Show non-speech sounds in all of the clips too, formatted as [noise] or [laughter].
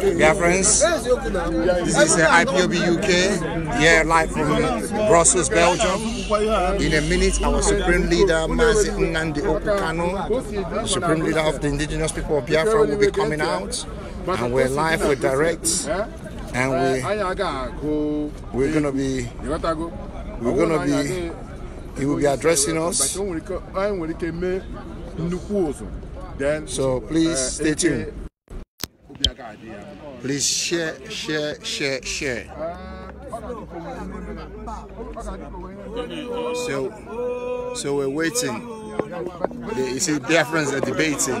Dear friends, this is the IPOB UK, here live from Brussels, Belgium. In a minute, our Supreme Leader, Mazi Nnamdi Okukano, Supreme Leader of the Indigenous People of Biafra, will be coming out. And we're live, we're direct, and we, we're going to be, we're going to be, he will be addressing us. So please stay tuned. Please share, share, share, share. So, so we're waiting. You see, Biafrans are debating.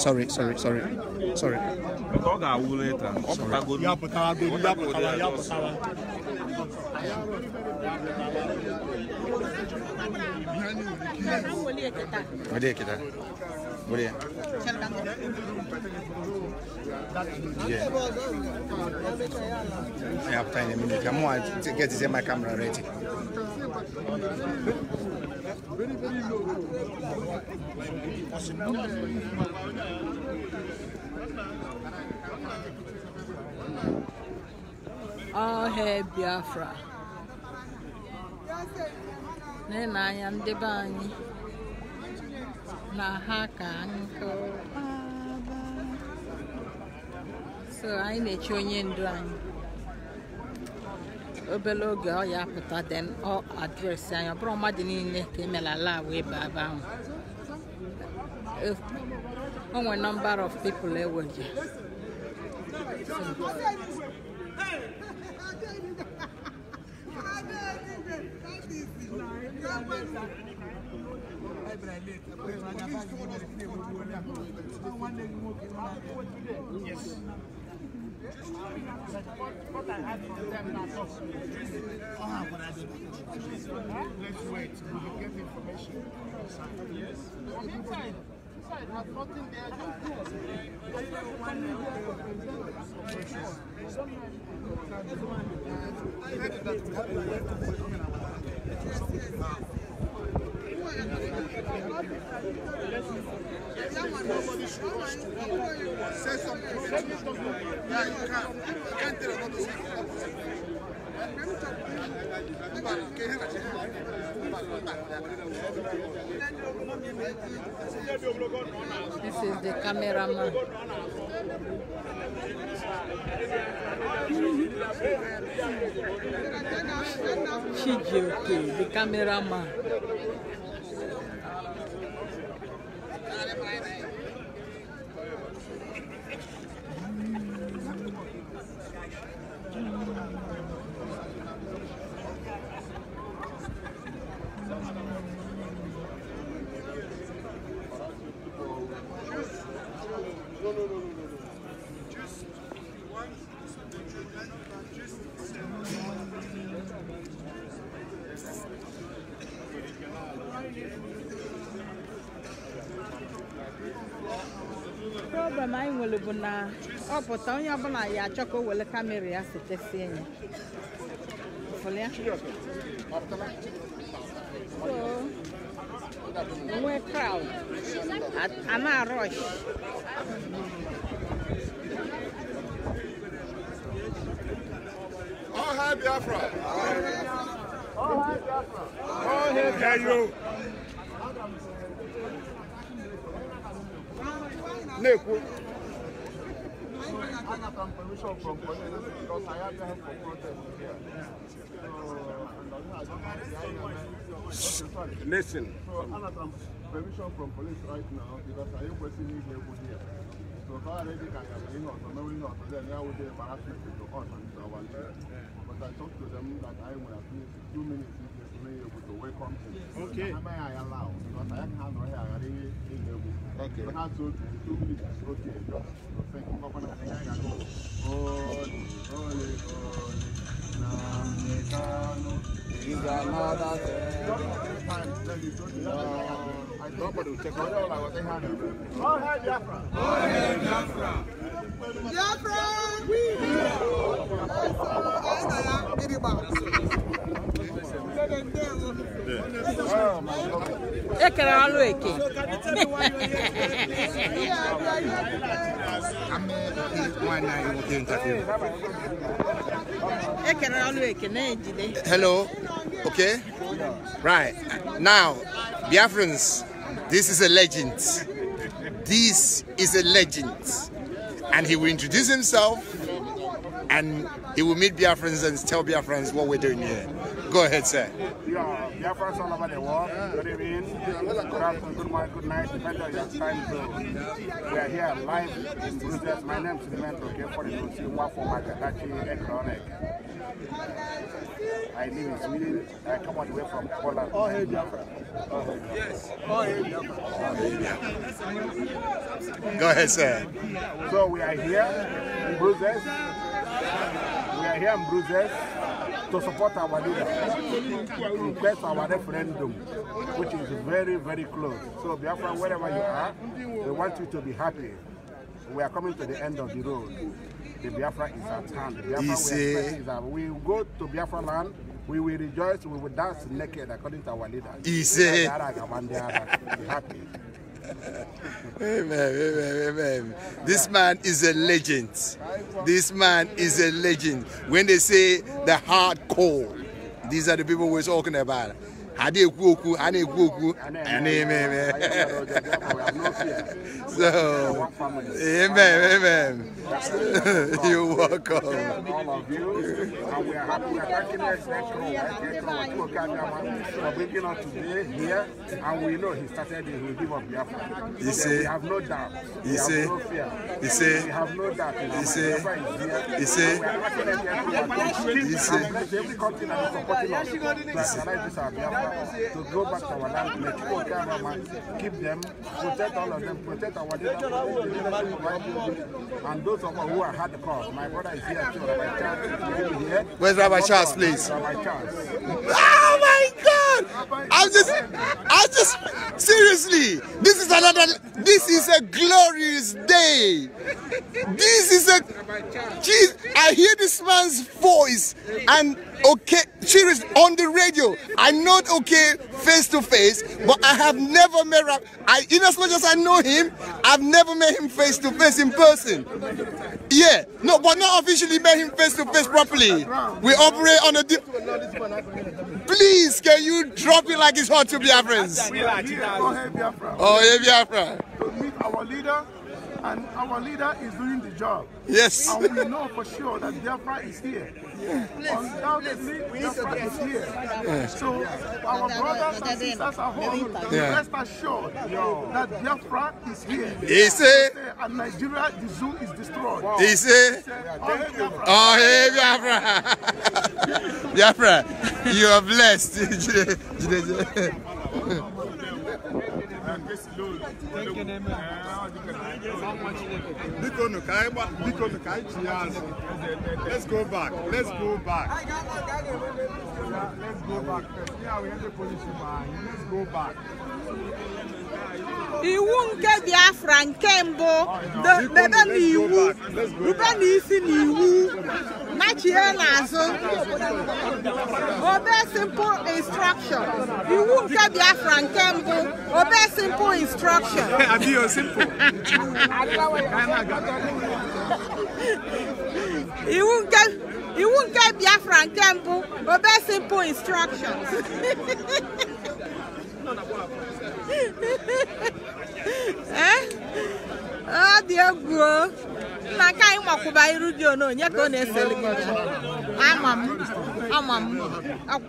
sorry sorry sorry sorry o Brilliant. I have time in I'm going to get to my camera ready. Very, very low. All hail Biafra. Nene, I am the bunny. na ha ka nkụ so anyị na-eche onye ndu anyị obere oge ọ ya pụta den ọ adresị anyị ọ bụrụ mmadụ niile ka emela lab ebe ebe ahụ o nwere number of people eweje Thank you. Yes. What I I not Let's wait. We get information. Yes. inside. Inside has nothing there. Don't I don't I This is the cameraman. Chijioke, the cameraman. onye ọbụla ya achọ ka o wele kamera ya setesie ya ụfụlịa nwee kraụd ama rush All Biafra! All Biafra! All Biafra! Na-ekwu permission from police because I have time for protest here. So, Listen. So, I have permission from police right now because I am here for here. So, if I already can have been on, so knowing not, then I would be embarrassment to us and to our leader. But I talked to them that I will at two minutes to be able to welcome them. Okay. Am I allow? Because I can't handle here. Okay. We have two, two minutes. Okay. Just thank you. Papa, na kanya ko. Ole, ole, ole. Na metano. Iga mata se. Nobody check out all our thing. All hail Biafra. All hail Biafra. Biafra, we. Biafra, we. Biafra, we. Oh my God. hello okay right now biafrans this is a legend this is a legend and he will introduce himself and he will meet biafrans and tell biafrans what we're doing here Go ahead, sir. Yeah, yeah first all about the war. Good evening, good afternoon, good morning, good night, depending on your time zone. We are here live in My name is Makatachi Economic. I live in Sweden. I come all the way from Poland. Oh, hey, Biafra. Oh, yes. Oh, oh, hey, Biafra. Go ahead, sir. So we are here in are here in Brussels to support our leader, to request our referendum, which is very, very close. So, Biafra, wherever you are, we want you to be happy. We are coming to the end of the road. The Biafra is at hand. The Biafra we is at We will go to Biafra land. We will rejoice. We will dance naked according to our leader. He said. happy. [laughs] amen, amen, amen. This man is a legend. This man is a legend. When they say the hardcore, these are the people we're talking about. a na-ekwu okwu a na-ekwu okwu n'ime ime so amen amen you welcome you see you see you see you see you see you see you see to go back to our land, let people come and keep them, protect all of them, protect our children, and those of us who are hard cause. My brother is here too, Rabbi Charles. Here. Where's Rabbi Charles, please? Rabbi Charles. Oh my God! I'm just, I'm just, seriously, this is another, this is a glorious day. This is a, geez, I hear this man's voice and okay, she is on the radio. I'm not okay face to face, but I have never met Rap. I, in as much as I know him, I've never met him face to face in person. Yeah, no, but not officially met him face to face properly. We operate on a. Please, can you drop it like it's hot to be friends? Oh, yeah, Biafra. Our leader. And our leader is doing the job. Yes. And we know for sure that Biafra is here. Yeah. Undoubtedly, Biafra is here. Yeah. So our brothers and sisters at home, yeah. rest assured that Biafra is here. Is it? And Nigeria, the zoo is destroyed. Wow. Is it? Oh, hey, Biafra. [laughs] Biafra, you are blessed. [laughs] Let's go back. Let's go back. Let's go back. Let's go back. iwu nke biafra nke mbụ debe n'iwu rube n'isi n'iwu machie n'azụ obe simple instruction iwu nke biafra nke mbụ obe simple instruction iwu nke iwu nke biafra nke mbụ obe simple instructions [laughs] ọ dị egwu na nke anyị makwụba iru dị onye ka ọ na ese gị Amam. Amam. Ak.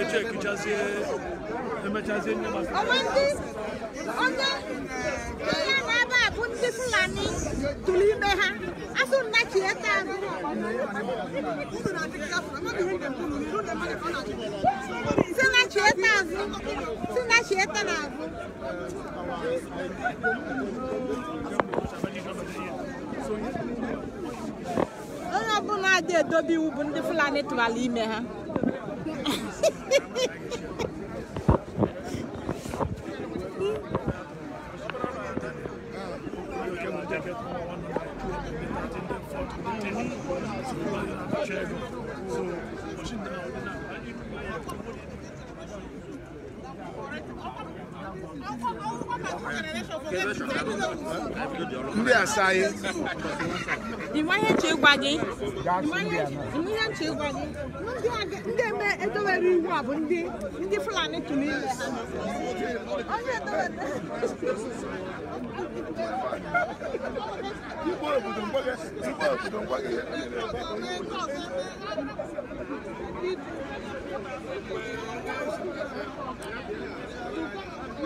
Ece kucaziye, hemen kucaziye ne bak? Aman değil, onda, tutti fulani tulimbe ha asunna kieta sina kieta azu sina kieta na azu onye ọbụla adị edobe iwu bụ ndị fulani tụbara ime ha [laughs] ndị asaghị ịmanye chi ịgwa gị ndị eme edowere iwu a bụ ndị ndị fulani tụrụ Thank you. [laughs]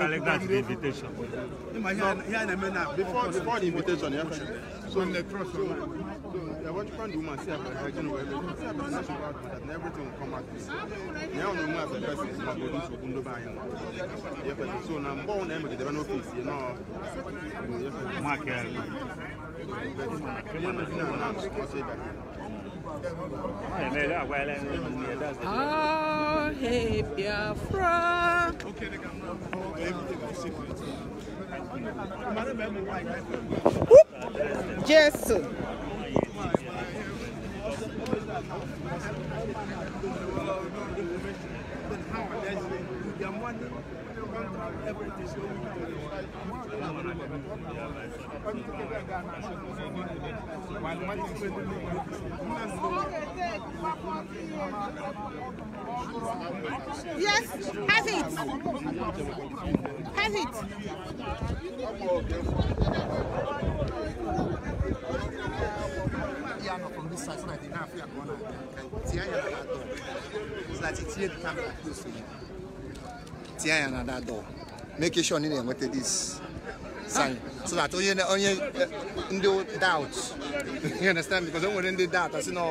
Kalek, that's the invitation. Before, before the invitation, yeah. So, on the cross, so, so the Vatican woman say about hygiene well, everything will come out this. Now, no more as a going to Kundo by him. so now, born them the office, you know. Mark, Oh, ah, hey, Biafra. Okay, they Jésù. How are they? contract, everything. Come together, Ghana. While Yes, have it. Have it. from this side, so that they can't feel a corner. It's like it's here, the camera close to you. tinye anya na that door make sure na ị na-enweta this sign so that onye onye eh, ndị doubt [laughs] you understand because onwere nwere ndị doubt asị na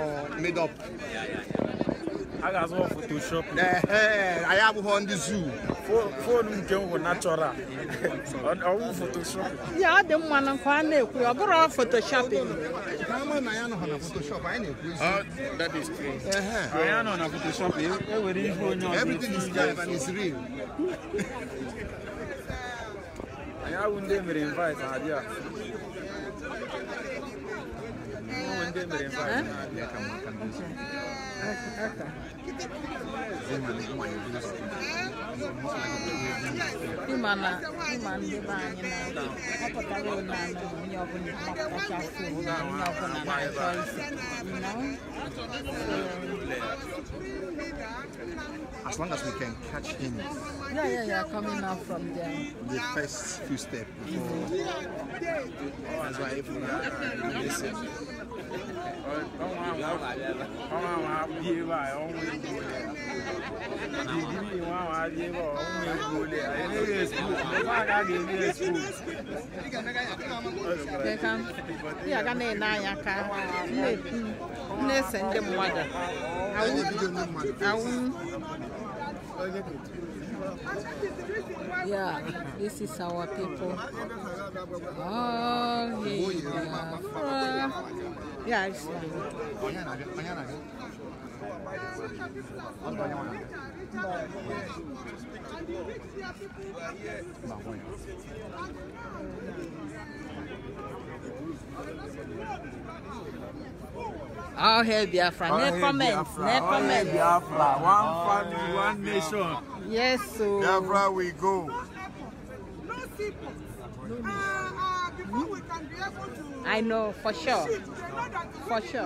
made up a ga-azụ photoshop anyị abụghị ndị zoo foonu nke m bụ natural ọ bụ photoshop ya ọ dị mma na nke a na-ekwu ọ bụrụ photoshop anyị anọ na photoshop ewere e ihe onye ọzọ anyị abụ ndị emere invite na abịa As long as we can catch him. Yeah, yeah, yeah, coming out from there. The first few steps before. That's why if we are vamos lá vamos lá vamos lá vamos lá vamos lá vamos lá vamos lá bá ọ̀hún egbò lẹ̀ ayélujára school mẹ́fà àgàgà ilé school. Ndị aga na-ene anya ka na-ese ndị mmadụ awụ awụ Yeah, this is our people. Oh, yeah. Yeah, it's good. I'll I'll hail Biafra. I'll Necromant. Biafra. One family, one nation. Yes, so. Biafra, we go. I know, for sure. For sure.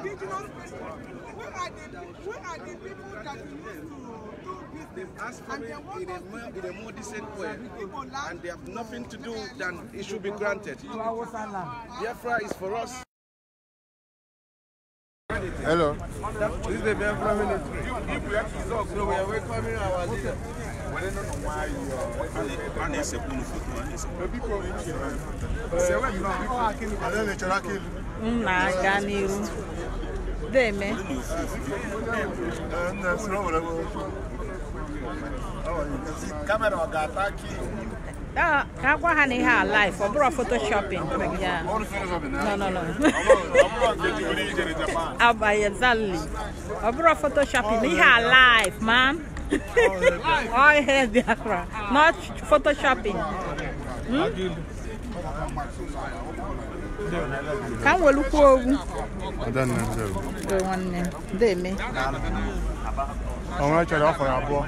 Where are the, where are the people that we need to they've asked for it in a, more, in a more decent way, and they have nothing to do than it should be granted. Biafra is for us. Hello. This is the Biafra ministry. If we have results, so we are welcoming our leader. na-aga n'iru deme kamera ọ ga-ata aka That that one had in life. I brought photoshopping. Yeah. No, no, no. [laughs] Abba, exactly. I brought photoshopping. In her life, man. [laughs] All hair diagram. Not photoshopping. Hmm? Can we look over? I don't know. The one name. They me. I'm going to try to offer a boy.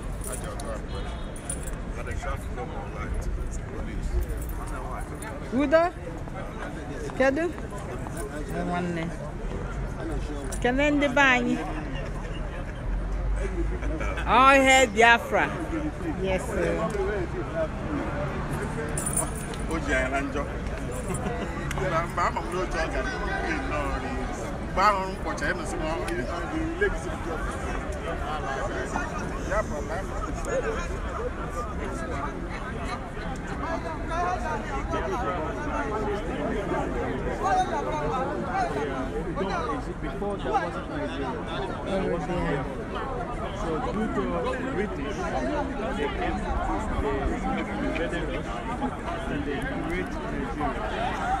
I do the Kedu? Nwanne. Kenan ndị All oh, Biafra. Yes. na njọ before So due to British, they came, they invaded us and they created Nigeria.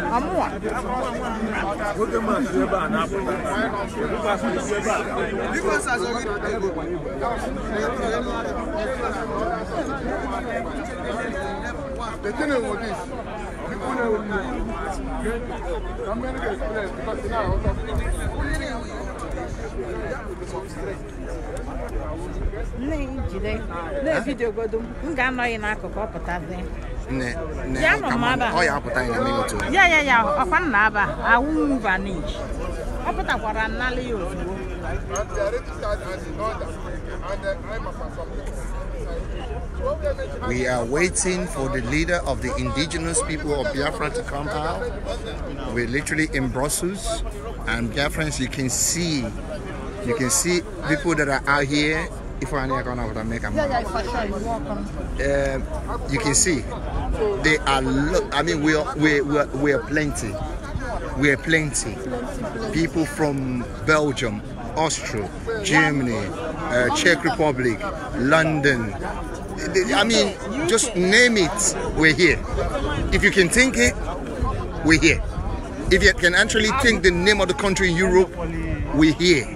Vamos lá. The thing with this, people know what I'm going to get because now jide ya nọ ọ ya ya ya ya ya na-aba awụ We are waiting for the leader of the indigenous people of Biafra to come out. We're literally in Brussels, and Biafrans, you can see, you can see people that are out here if I make a um, you can see they are I mean we are we we are, we are plenty. We are plenty. People from Belgium, Austria, Germany, uh, Czech Republic, London. I mean, just name it, we're here. If you can think it, we're here. If you can actually think the name of the country in Europe, we're here.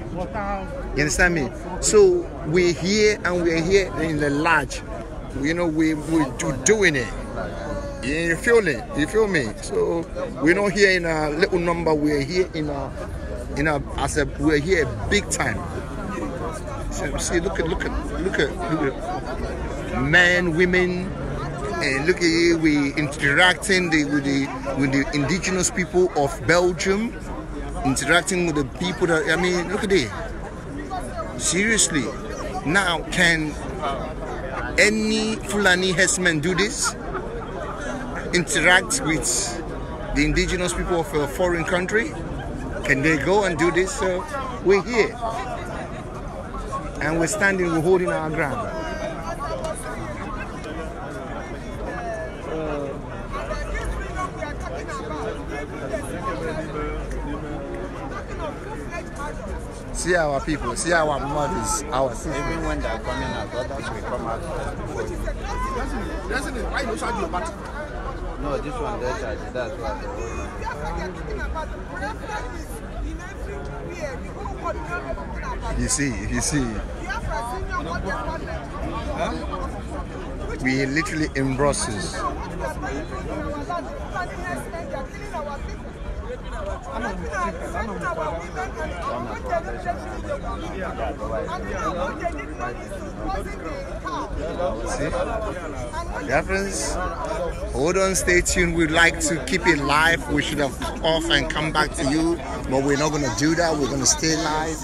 You understand me? So we're here and we're here in the lodge. You know, we, we're doing it. You feel it? You feel me? So we're not here in a little number. We're here in a, in a, as a, we're here big time. So, see, look at, look at, look at, look at men, women, and look at here, we interacting the, with the with the indigenous people of Belgium, interacting with the people that I mean, look at it. Seriously, now, can any Fulani herdsman do this? Interact with the indigenous people of a foreign country? Can they go and do this? So we're here. And we're standing, we're holding our ground. See our people, see our mothers, our sisters. Even when they are coming our daughters will come out you. Why you charge your battery? No, this one they charge. That's why they You see, you see. We literally in Brussels. See? Dear friends, hold on, stay tuned. We'd like to keep it live. We should have off and come back to you, but we're not going to do that. We're going to stay live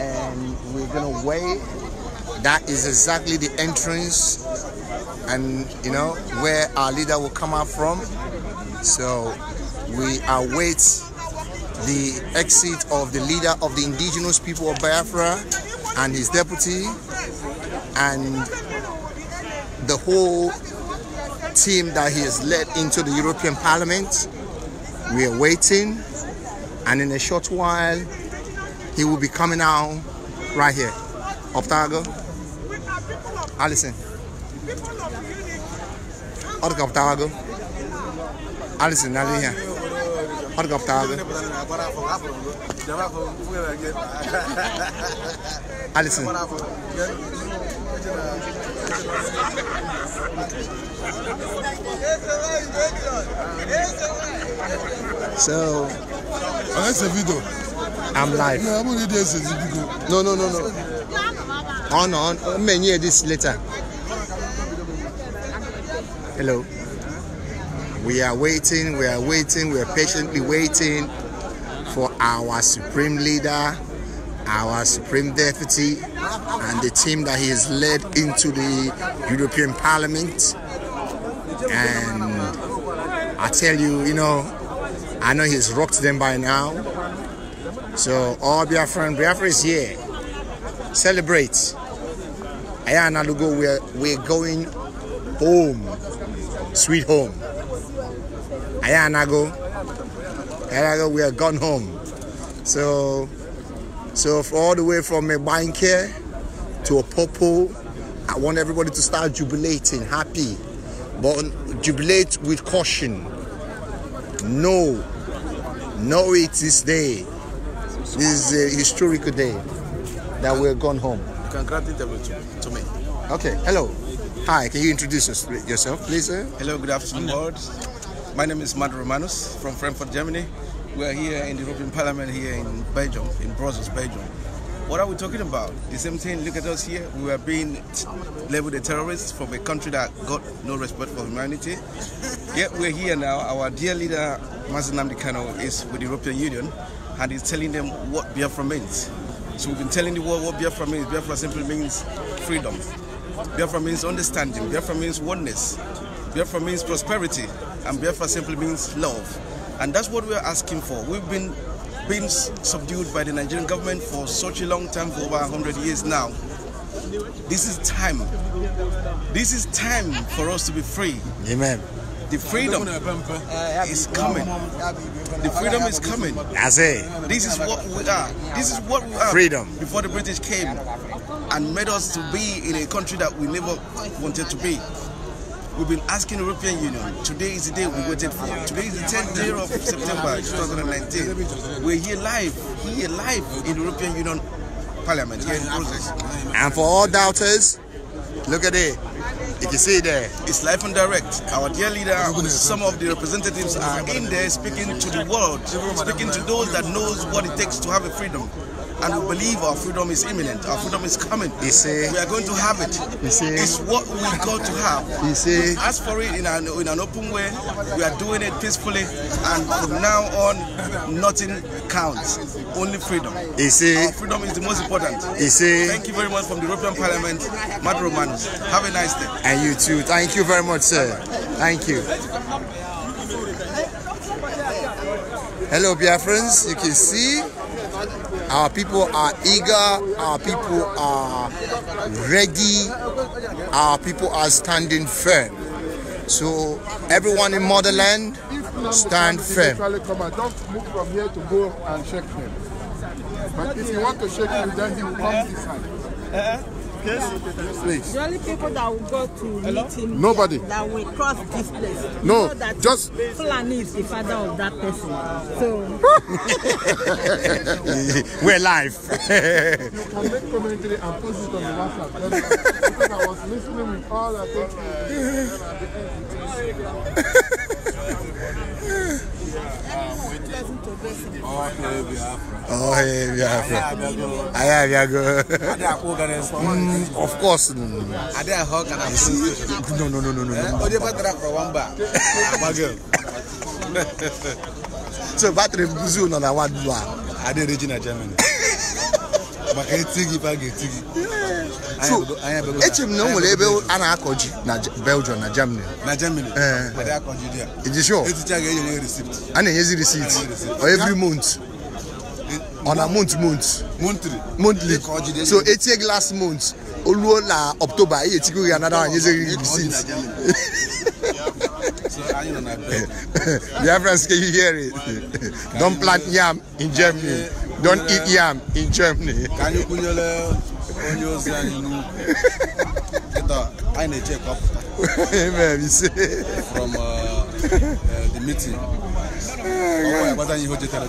and we're going to wait. That is exactly the entrance and, you know, where our leader will come out from. So we await the exit of the leader of the indigenous people of Biafra and his deputy and the whole team that he has led into the European Parliament. We are waiting and in a short while he will be coming out right here. Optago, Alison. Optago, Alison, Alison here. Hargaptaalde. Alison. So. Oh, that's a video. I'm live. No, No, no, no, no. On, on. Many years later. Hello. We are waiting, we are waiting, we are patiently waiting for our supreme leader, our supreme deputy, and the team that he has led into the European Parliament. And I tell you, you know, I know he's rocked them by now. So all Biafran, Biafra is here. Celebrate. Ayana Lugo, we're, we're going home, sweet home. Ayanago. Ayanago, we are gone home. So, so all the way from a bank here to a popo, I want everybody to start jubilating, happy, but jubilate with caution. No, no, it is day. This is a historical day that we're gone home. Congratulations to, to me. Okay, hello. Hi, can you introduce yourself, please? Sir? Hello, good afternoon, my name is Mad Romanus from Frankfurt, Germany. We are here in the European Parliament here in Belgium, in Brussels, Belgium. What are we talking about? The same thing, look at us here. We are being labeled a terrorist from a country that got no respect for humanity. Yet we're here now. Our dear leader, Mazen Namdi is with the European Union and he's telling them what Biafra means. So we've been telling the world what Biafra means. Biafra simply means freedom. Biafra means understanding. Biafra means oneness. Biafra means prosperity, and Biafra simply means love. And that's what we're asking for. We've been been subdued by the Nigerian government for such a long time, for over 100 years now. This is time. This is time for us to be free. Amen. The freedom is coming. The freedom is coming. That's This is what we are. This is what we are. Freedom. Before the British came and made us to be in a country that we never wanted to be. We've been asking European Union. Today is the day we waited for. Today is the 10th day of September 2019. We're here live, here live in the European Union Parliament, here in Brussels. And for all doubters, look at it. You can see it there. It's live and direct. Our dear leader, some of the representatives are in there speaking to the world, speaking to those that knows what it takes to have a freedom and we believe our freedom is imminent. Our freedom is coming. Say, we are going to have it. Say, it's what we got to have. Say, ask for it in an, in an open way. We are doing it peacefully, and from now on, nothing counts. Only freedom. Our freedom is the most important. Thank you very much from the European Parliament, Matt Romanus. Have a nice day. And you too. Thank you very much, sir. Thank you. Hello, dear friends. You can see our people are eager, our people are ready, our people are standing firm. So everyone in motherland, stand firm. Don't move from here to go and shake him. But if you want to shake him, then he will come this side. Eh, eh, eh. Yes, please. The only people that will go to Hello? meet him Nobody. that will cross this place. No, you know that just Fulani is the father of that person. So [laughs] we're live. you can make commentary and post it on the WhatsApp. Because I was [laughs] listening with all I Oh, Biafra. Oh, hey, Biafra. Aya, Biago. Of course. No, no, no. Are they a hawk and a see? No, no, no, no, no. Oh, they better for one bar. So, battery Brazil on a one bar. Are they regional Germany? Maka etigi, baga etigi so echere m na o nwere ebe a na-akọ ji na belgium na germany na germany eh. iji sure e a na-enyezi receipt every month on e- a month month monthly so etie gị last month o ruo na october ị etigo gị anada anyeziri receipt [laughs] Biafrans, [laughs] can you hear it? Don't plant yam in Germany. Don't eat yam in Germany onye ozi anyị n'ugwu kịta anyị na-eche kọpụta from uh, uh, the meeting ọ gwara gbata ihe o jetere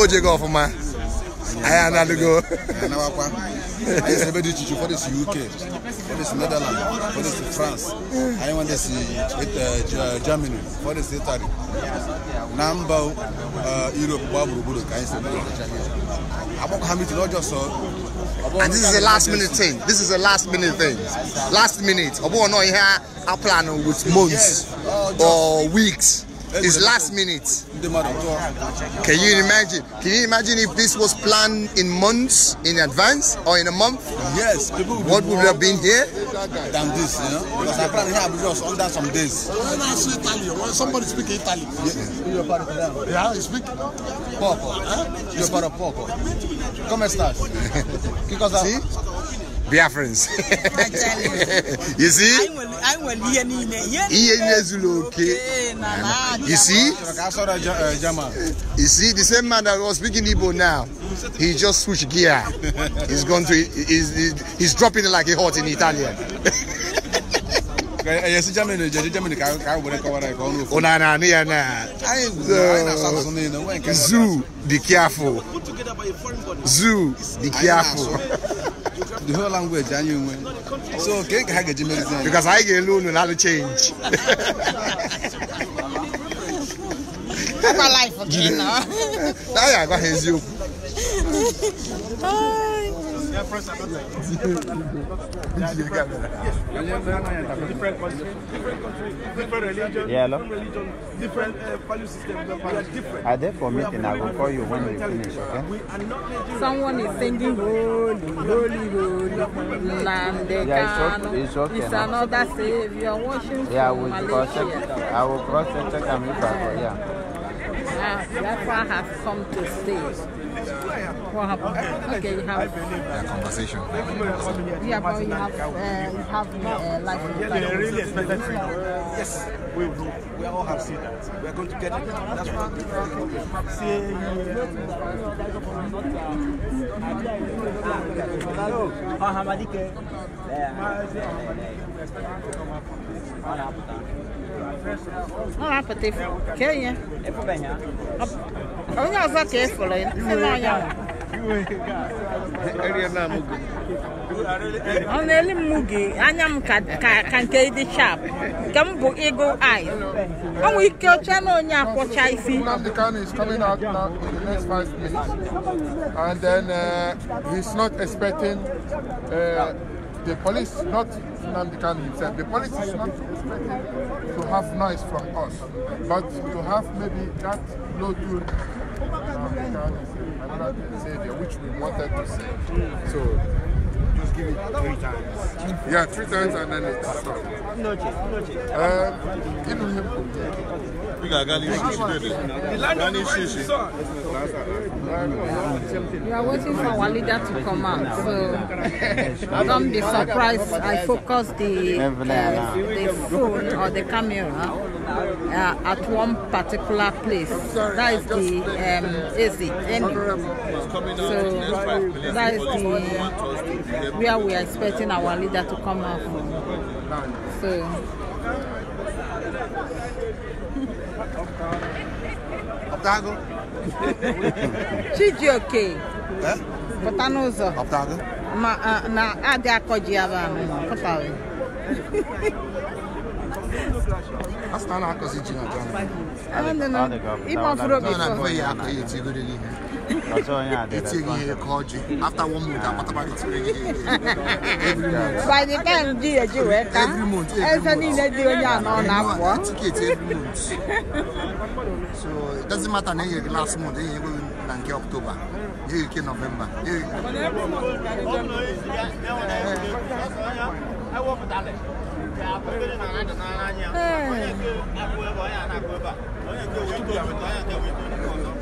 o jego ọfụma I am not to go. I used to be the teacher for this UK, for this Netherlands, for this France. I want to see uh, Germany, for this Italy. Number uh, Europe, I used to be the champion. I'm not just And this is a last minute thing. This is a last minute thing. Last minute. Obo no here, I plan with months or weeks. It's last minute. Can you imagine? Can you imagine if this was planned in months in advance or in a month? Yes, people. Would what would have been here? Than this, you know? Because I planned here Abuja was under some days. When I say Italian, when somebody speak Italian. Yeah, yeah you speak poco. Eh? You're part of poco. Come stas? [laughs] Because I. Uh, Biafrans. you see? You see? You see, the same man that was speaking Igbo now, he just switched gear. He's going to, he's, he's dropping it like a hot in Italian. Zoo, be careful. Zoo, be careful. the whole language anyị nwe so kee ka ha ga-eji mezi anyị because anyị ga-elu unu na change anyị agwa ha eziokwu Their friends Different country, different religion, different value system. are there for meeting? I will call you when we finish, okay? We are not Nigerian. Someone is singing holy, holy, holy, land. Yeah, it's okay. It's, okay it's another savior worship. Yeah, I will cross check. I will cross check and look at it. Yeah. Ah, that's what I have come to say. What happened? Okay, you have yeah, conversation. Yeah, but you have uh, you have uh, life. Yeah, they really expected to Yes, we will. We all have seen that. We are going to get it. That's what Ah, para ter. Quem é? É para ganhar. Olha só quem foi lá. Não é ganhar. ọ na-eli m mugi anya m ka nke ịdị sharp nke m bụ eagle eye ọnwụ ike ọcha na onye akwọcha is coming out now in the next five minutes and then uh, he's not expecting uh, the police, not Nnamdi Kanu himself, the police is not expected to have noise from us, but to have maybe that low tune Nnamdi Savior, which we wanted to see. So just give it three times. Yeah, three times and then it's stopped. Um, inu him. We got Gani Shishi. Gani we are waiting for our leader to come out, so [laughs] don't be surprised. I focus the uh, the phone or the camera uh, at one particular place. That is the um, exit So that is the where we are expecting our leader to come out from. So. [laughs] Optago? [laughs] Chidi ok. Eh? Pota n'ụzọ. Optago? Ma na adị akọji vamos ba pụtara. Asị na a na não ji na Ghana. Ịma não, obi fọ. Na na-akọ ya it's a called you. After one month, I'm about to Every month. By the time you get you work, every month. Every month. Eh, every month. Ticket every month. So it doesn't matter. Then last month, then you go in October, you go November. I work with Alex. Hey.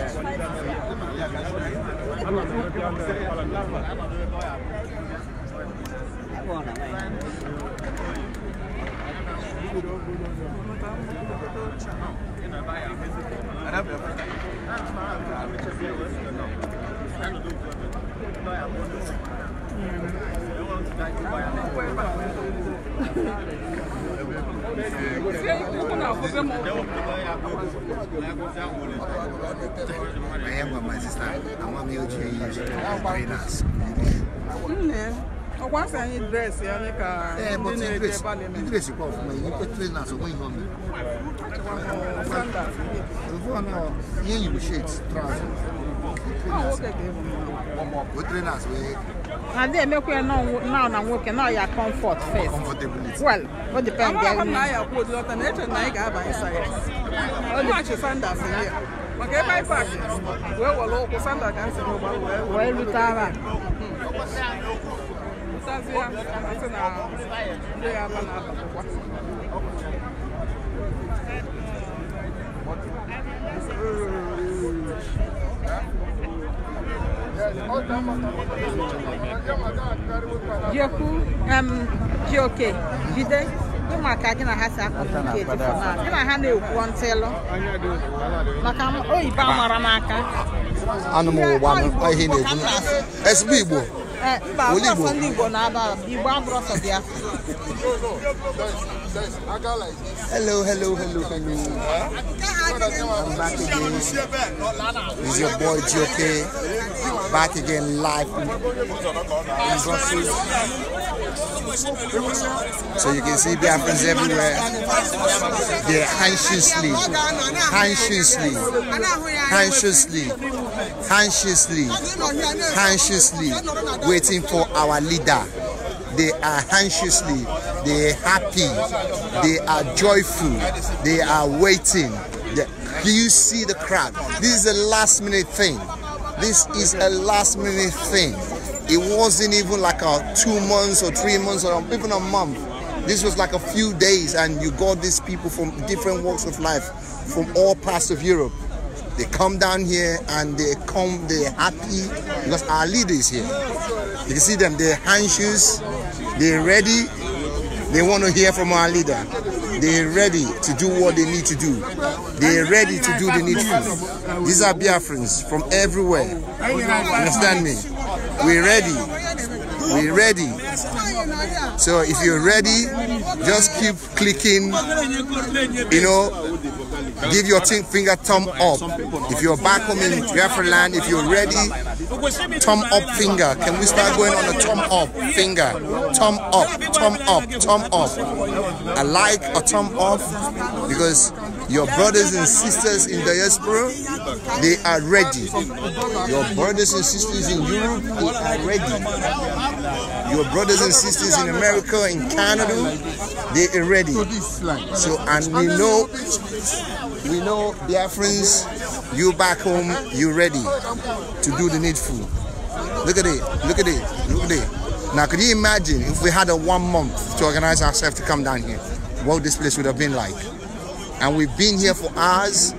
Agora, vai. Não, não. I am with my sister. I want me to use trainers. Once I need dress, I need a. Yeah, but the dress, the dress you call for me, you put trainers away from me. Sandals. You go now. Yeah, you shades, trousers. Good trainers wey. Na there make we now na nwoke now your comfort first. Well, what depend there. na ya kwuo lọta na eche na ị ga-aba inside. Ọ dị achị Sanders here. Maka ebe anyị paaki wee wọrọ ụkwụ Sanders ga nsị n'ụgba wee. rute ara. Ntazi ya asị na ndị ya aba na akwụkwọ. Mm. jekwu jioke jide ịma ka gị na ha si akpọ gị na ha na-ekwu ntịlụ maka oyibo amara n'aka anụ m na-ekwu sb igbo mba abụrọsọ ndị Igbo na-aba Igbo Hello, hello, hello, hello. I'm back again. It's your boy GOK. Back again live So you can see Biafrans everywhere. They're anxiously, anxiously, anxiously anxiously, anxiously waiting for our leader. They are anxiously, they are happy, they are joyful, they are waiting. Do you see the crowd? This is a last minute thing. This is a last minute thing. It wasn't even like a two months or three months or even a month. This was like a few days and you got these people from different walks of life from all parts of Europe they come down here and they come, they're happy because our leader is here. You see them, they're anxious, they're ready, they want to hear from our leader. They're ready to do what they need to do. They're ready to do the needful. These are Biafrans from everywhere. Understand me? We're ready. We're ready. So if you're ready, just keep clicking, you know, Give your finger thumb up. If you're back home in Land, if you're ready, thumb up finger. Can we start going on a thumb up finger? Thumb up, thumb up, thumb up. I like a thumb up because your brothers and sisters in diaspora, they are ready. Your brothers and sisters in Europe, they are ready. Your brothers and sisters in America, in Canada, they are ready. So, and we know, we know, dear friends, you back home, you ready to do the needful. Look at it, look at it, look at it. Now, could you imagine if we had a one month to organize ourselves to come down here? What this place would have been like? and we've been here for hours.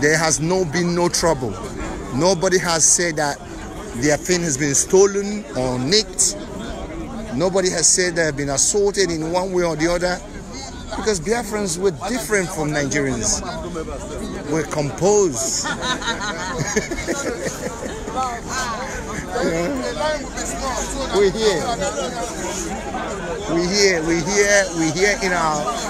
There has no been no trouble. Nobody has said that their thing has been stolen or nicked. Nobody has said they have been assaulted in one way or the other because Biafrans were different from Nigerians. We're composed. [laughs] we're here. We're here. We're here. We're here in our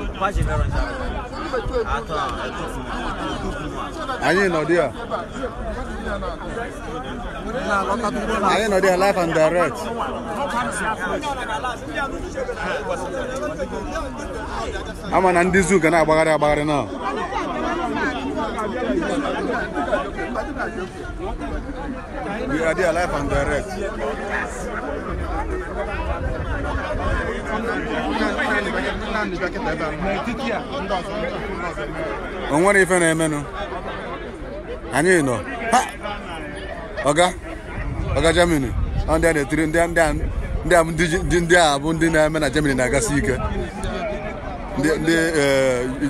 Pas j'ai vers un Attends, écoute live and direct. Ama na ndị zoo ga na-agbagharị agbagharị na We are there live and direct. o nwere ife na-emenụ anyị nọ ọga ọga Jemini. ndị a na-etiri ndị a bụ ndị na-eme na Germany na-agasi ike ndị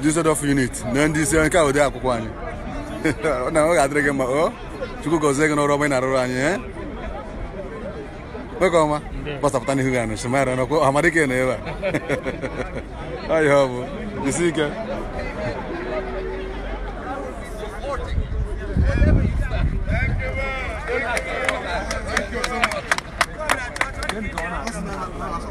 eh, of unit na ndị isi nke dị akwụkwọ anyị [laughs] ọ na-adịrị gị mma o oh, Chukwu gọzie gị n'ọrụ ọma ị na-arụrụ anyị eh? koma b a s a p ụ t a n'ihu g a na shimara na a m a r i k e na ebe a ọya ọ bụ jisi ike Thank you so much.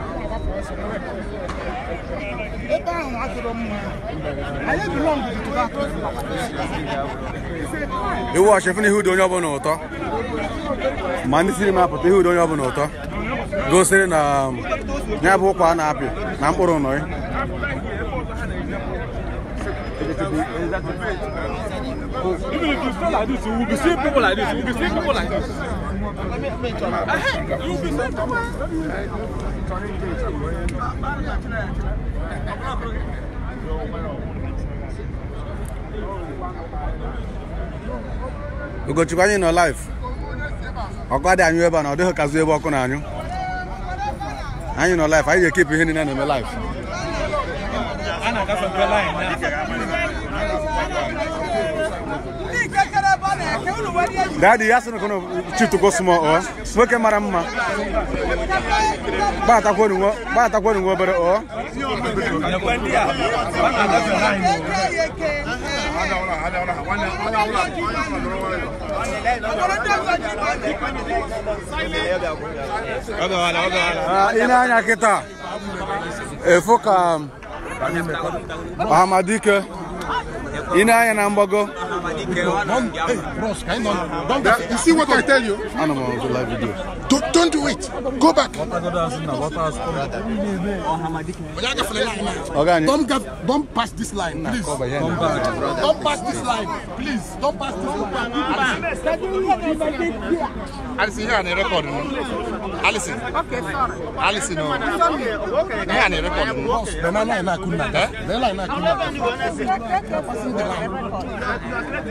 iwu achefuna ihe udo onye ọbụla ụtọ ma ndị siri m apụta ihe udo onye ọbụla ụtọ gosiri na um, ya bụ ụkwa a na-apị na mkpụrụ nọị Even if you feel like this, you will be seeing people like this. You will be seeing people like this. Hey, you will be seeing people like this. Ugochukwu anyị nọ live ọkụ adị anyụ ebe a na ọ dịghị ebe ọkụ na-anyụ anyị nọ live anyị ga ekepụ ihe niile na-eme Daddy, ya sị na kono chitugo small ọ nwoke mara mma gbatakwori nwe obere ọ ị ah, na-anya kịta efu ka Ahamadike ị na-anya na mgbago Don't, eh, you see what I tell you? Don't, don't do it. Go back. Don't, don't pass this line, please. Don't pass this line, please. Don't pass this line. Alison, here on the record. Alison. Okay, sorry. Alison, no. Okay. You're on the record. Then I know I couldn't. Then I know I couldn't.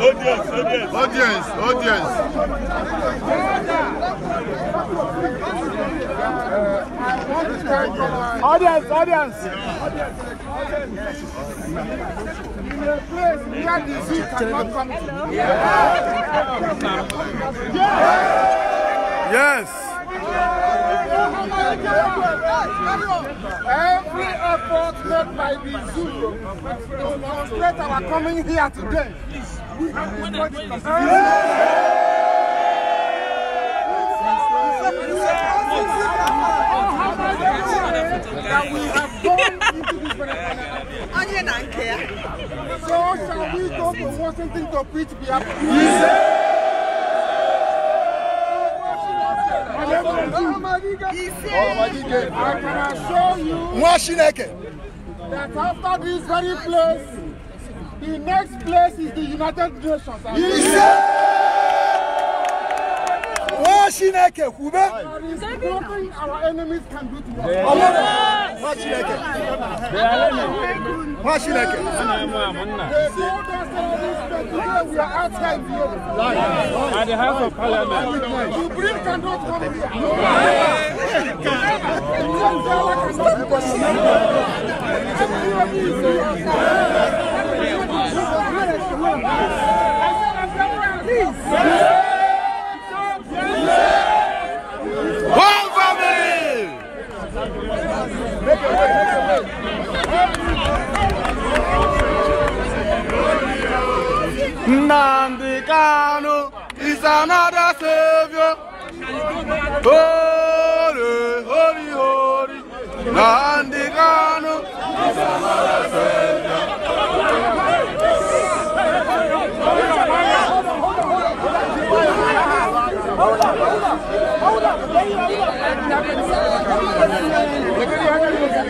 Audience, audience. Audience, audience. Audience, audience. In a place cannot come Yes. Every effort made by the zoo to demonstrate our coming here today Onion and care. So shall we go from Washington to Pittsburgh? Yes. I can assure you that after this very place, the next place is the United Nations. Ise! Wọ́n Chineke kwube. What is nothing our enemies can do to us. Ọmọdé wọ́n Chineke. Wọ́n Chineke. They told us that today we are outside here. At the House of Parliament. You bring cannot come here. No. Never. Never. Never. Never. Never. Never. nandikano is another savior holy holy holy nandikano is another savior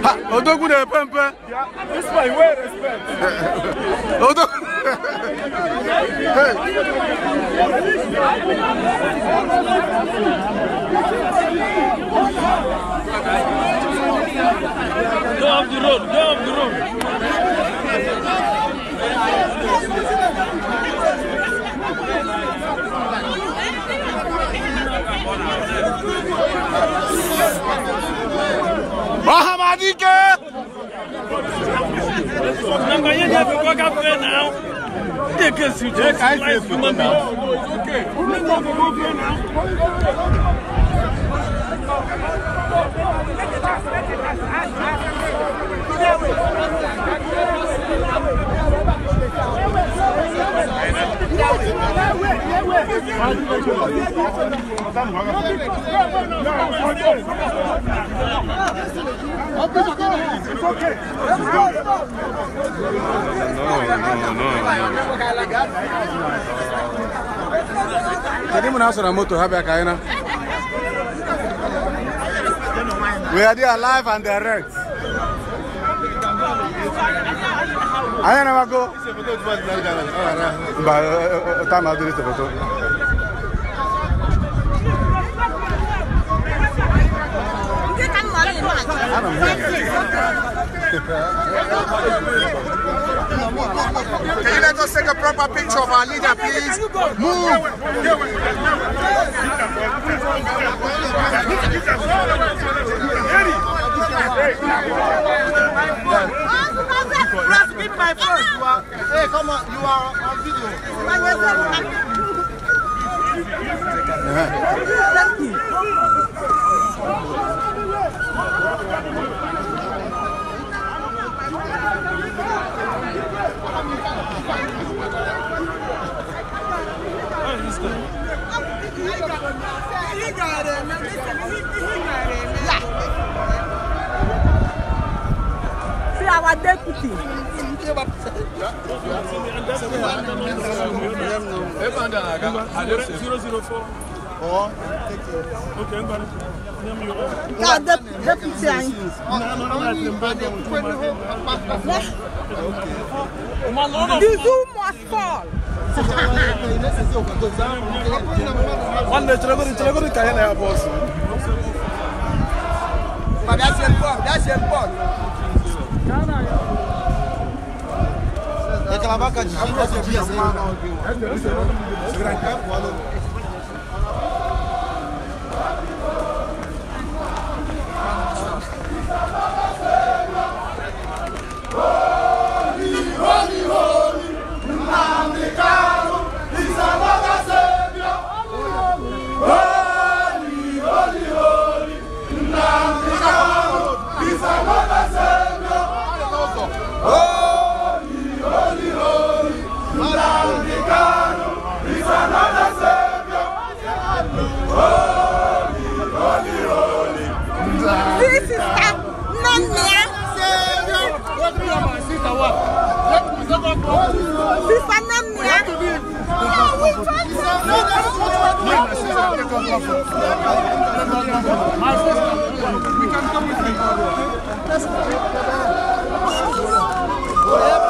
Ha, odogu pempe. This [laughs] my way respect. odogu. Go off the road. Go off the road. Bahamadi que? Não ganhei dinheiro com a café não. Que que é isso? Que é mais que mami? O que? O não ganhei com a café não. Thank you. Kedu mụ na-asọrọ moto ha bịa ka anyị na? We are there alive and direct. I don't know what t'as mal photo. Can you let us take a proper picture of our leader, please? Move! right first. You are, hey, come on, you are on video. Thank you. He got it, man. Listen, he, he got it, man. See our deputy. God, the deputy. The zoo must fall. One day, you're going to get a boss. But that's important. That's important. aquela vaca de 30 dias. Segurar em campo, We can come with me.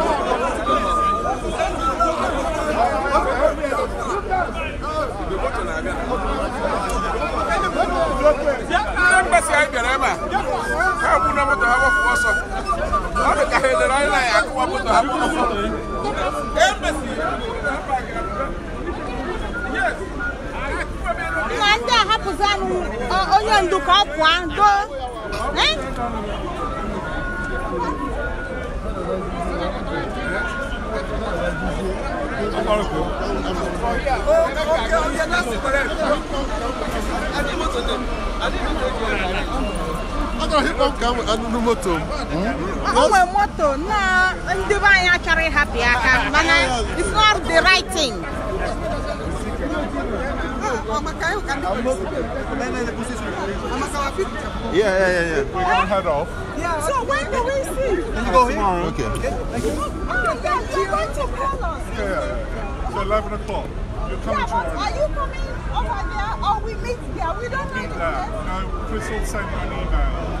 si anyị bịara ebe a ha bụ na moto ha gbapụ ọsọ ọ dị ka ha edere anyị na anyị akụwa moto ha bụ ọsọ nna ndị ahapụzi anụ onye ndu ka ọ pụọ doo o nwere moto na ndị be it's not the right thing. Ah, yeah, yeah, yeah, yeah. We off. Yeah. So when do we see? you go here? Okay. Oh, you're going to call us. Yeah, yeah, yeah. 11 o'clock. You're coming yeah, tomorrow. Are you coming over there or we meet there? We don't know. Meet there. No, Chris will send you an email.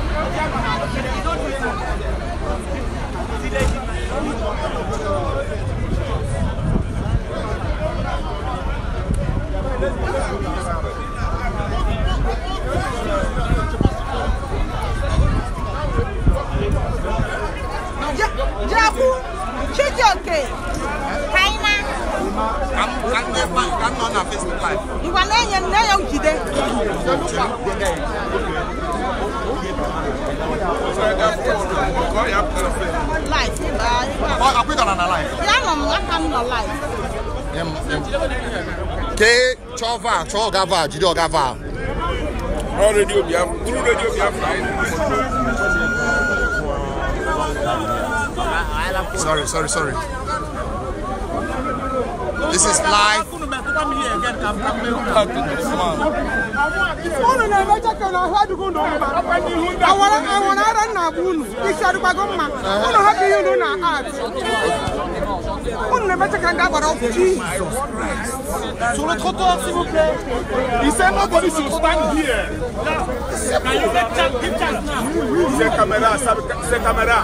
color na life? Yeah, mom, that kind of life. chova, chogava, jidogava. All radio Biafra, through radio Biafra. Sorry, sorry, sorry. This is live. Sur le trottoir, s'il vous plaît. Il sait nobody should stand here. Can you Ces caméras, ces caméras.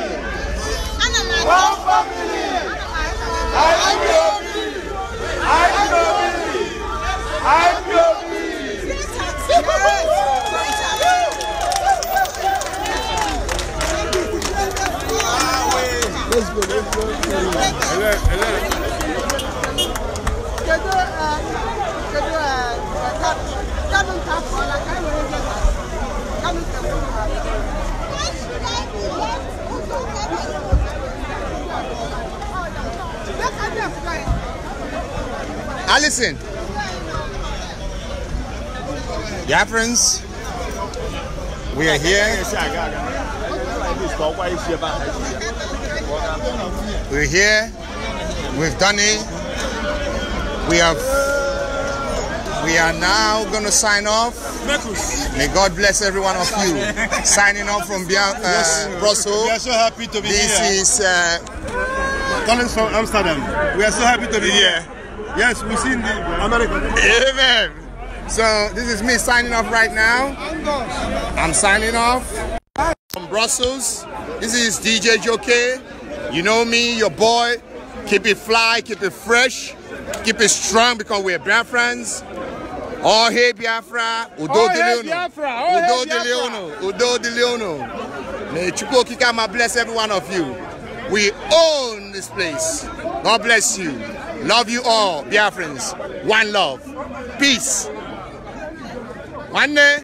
Allison. Yeah, friends. We are here. We're here. We've done it. We have. We are now going to sign off. May God bless every one of you. [laughs] Signing off from uh, Brussels. We are so happy to be this here. This is. Uh, calling from Amsterdam. We are so happy to be here. Yes, we've seen the America. Amen. So this is me signing off right now. I'm signing off from Brussels. This is DJ Joke. You know me, your boy. Keep it fly, keep it fresh, keep it strong because we're friends. Oh hey Biafra, Udo oh, hey, Biafra. Oh, Udo hey, Biafra. De Leono, Udo De Leono. May Chukwu Kika bless every one of you. We own this place. God bless you. Love you all, dear friends. One love. Peace. One day.